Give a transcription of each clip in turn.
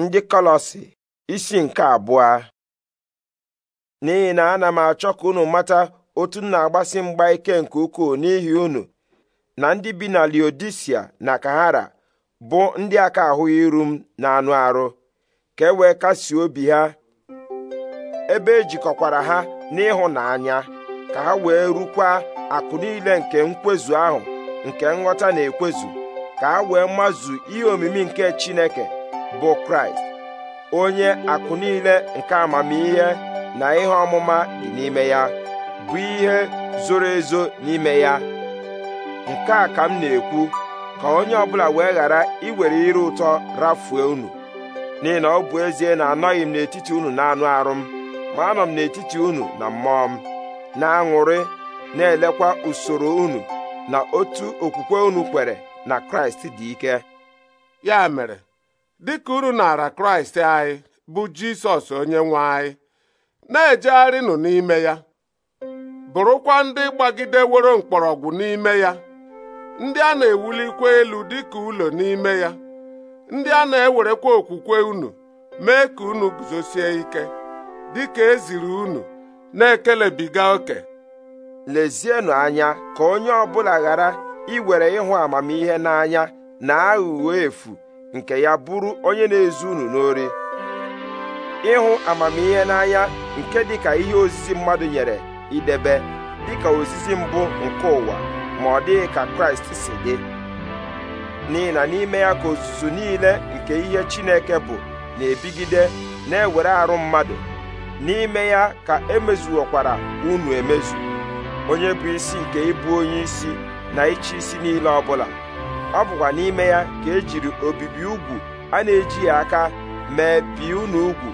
ndị kolosi isi nke abụọ n'ihi na ana m achọ ka unu mata otu m na-agbasi mgba ike nke ukwuu n'ihi unu na ndị bi na Liodisia na Kahara bụ ndị aka ahụghị iru m na anụ arụ ka e wee kasie obi ha ebe ejikọkwara ha n'ịhụnanya ka ha wee rukwa akụ niile nke nkwezu ahụ nke nghọta na-ekwezu ka ha wee mazu ihe omimi nke Chineke bụ kraịst onye akụ niile nke amamihe na ihe ọmụma dị n'ime ya bụ ihe zoro ezo n'ime ya nke a ka m na-ekwu ka onye ọbụla wee ghara iwere ire ụtọ rafue unu n'ihi na ọ bụ ezie na anọghị m n'etiti unu na-anụ arụ m ma anọ m n'etiti unu na mmụọ m na-aṅụrị na-elekwa usoro unu na otu okwukwe unu kwere na kraịst dị ike ya mere dịka uru nara kraịst anyị bụ jisọs onye nwe anyị na-ejegharịnụ n'ime ya bụrụkwa ndị gbagideworo mkpọrọgwụ n'ime ya ndị a na-ewulikwa elu dịka ụlọ n'ime ya ndị a na-ewerekwa okwukwe unu mee ka unu guzosie ike dịka eziri unu na-ekelebiga oke lezienụ anya ka onye ọ bụla ghara iwere ịhụ amamihe n'anya na aghụghọ efu nke ya bụrụ onye na-ezu unu n'ori ịhụ amamihe n'anya nke dịka ihe ozizi mmadụ nyere idebe dịka ozizi mbụ nke ụwa ma ọ dịghị ka kraịst si dị n'ihi n'ime ya ka ozuzu niile nke ihe chineke bụ na-ebigide na-ewere arụ mmadụ n'ime ya ka emezuokwara unu emezu onye bụ isi nke ịbụ onye isi na ịchị isi niile ọbụla ọ bụkwa n'ime ya ka e jiri obibi ugwu a na ya aka mee bi unu ugwu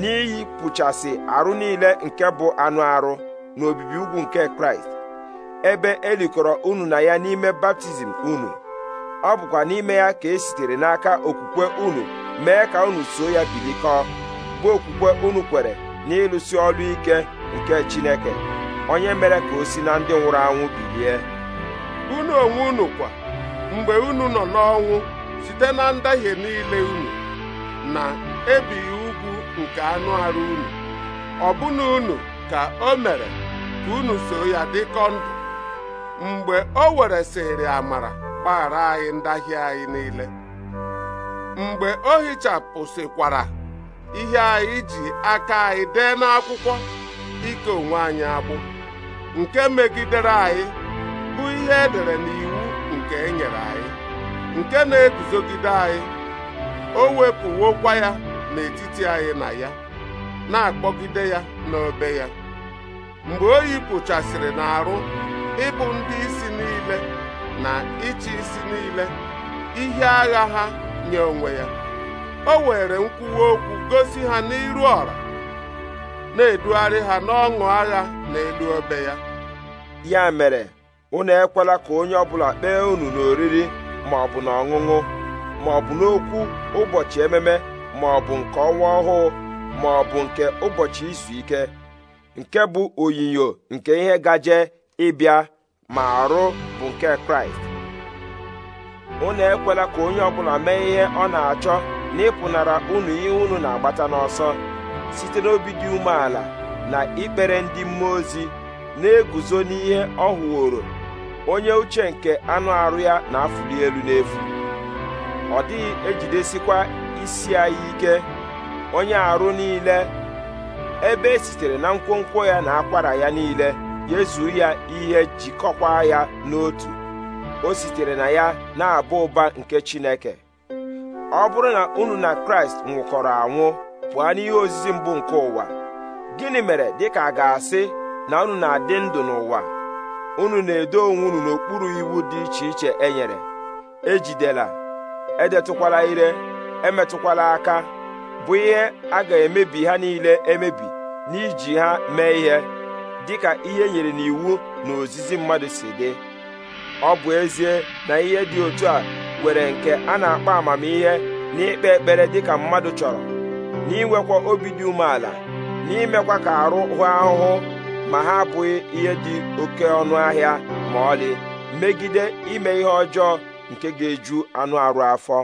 n'iyi pụchasị arụ niile nke bụ anụ arụ na obibi ugwu nke kraịst ebe elikọrọ unu na ya n'ime baptizim unu ọ bụkwa n'ime ya ka e sitere n'aka okwukwe unu mee ka unu so ya bilikọ bụ okwukwe unu kwere n'ịlụsi ọrụ ike nke chineke onye mere ka o si na ndị nwụrụ anwụ bilie unu onwe unu kwa mgbe unu nọ n'ọnwụ site na ndahie niile unu na ebighị ugwu nke anụ arụ unu ọbụna unu ka o mere ka unu so ya dịkọ ndụ mgbe o were sịrị amara gbaghara anyị ndahie anyị niile mgbe o hichapụsịkwara ihe anyị ji aka anyị dee n'akwụkwọ ike onwe anyị agbụ nke megidere anyị bụ ihe edere n'iwu nke e nyere anyị nke na-eguzogide anyị o wepụwokwa ya n'etiti anyị na ya na-akpọgide ya n'obe ya mgbe o yipụchasịrị n'arụ ịbụ ndị isi niile na ịchị isi niile ihe agha ha nye onwe ya o were nkwuwa okwu gosi ha n'iru ọra na-edugharị ha n'ọṅụ agha n'elu obe ya ya mere unu ekwela ka onye ọbụla kpee unu n'oriri ma ọ bụ na ọṅụṅụ ma ọ bụ n'okwu ụbọchị ememe ma ọ bụ nke ọnwa ọhụụ ma ọ bụ nke ụbọchị izu ike nke bụ onyinyo nke ihe gaje ịbịa ma arụ bụ nke kraịst unu ekwela ka onye ọbụla mee ihe ọ na-achọ na ịpụnara unu ihe unu na-agbata n'ọsọ site n'obi dị umeala na ikpere ndị mmụọ ozi na-eguzo n'ihe ọ hụworo onye uche nke anụ arụ ya na-afụli elu n'efu ọ dịghị ejidesikwa isi anyị ike onye arụ niile ebe esitere sitere na nkwonkwo ya na akwara ya niile yezuo ya ihe jikọkwa ya n'otu o sitere na ya na-abụ ụba nke Chineke ọ bụrụ na unu na Kraịst nwụkọrọ anwụ pụọ n'ihe ozizi mbụ nke ụwa gịnị mere dịka a ga-asị na unu na-adị ndụ n'ụwa unu na-edo onwe unu n'okpuru iwu dị iche iche enyere nyere ejidela edetụkwala ire emetụkwala aka bụ ihe a ga-emebi ha niile emebi n'iji ha mee ihe dịka ihe e nyere n'iwu na ozizi mmadụ si dị ọ bụ ezie na ihe dị otu a nwere nke a na-akpọ amamihe n'ikpe ekpere dịka mmadụ chọrọ n'inwekwa obi dị umeala n'imekwa ka arụ hụ ahụhụ ma ha abụghị ihe dị oke ọnụ ahịa ma ọlị megide ime ihe ọjọọ nke ga-eju anụ arụ afọ